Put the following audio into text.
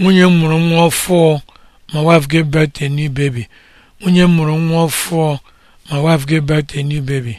nwunye m mụrụ nwa ọfụọ my wife gave birth to a new baby nwunye m mụrụ nwa ọfụọ my wife gave birth to a new baby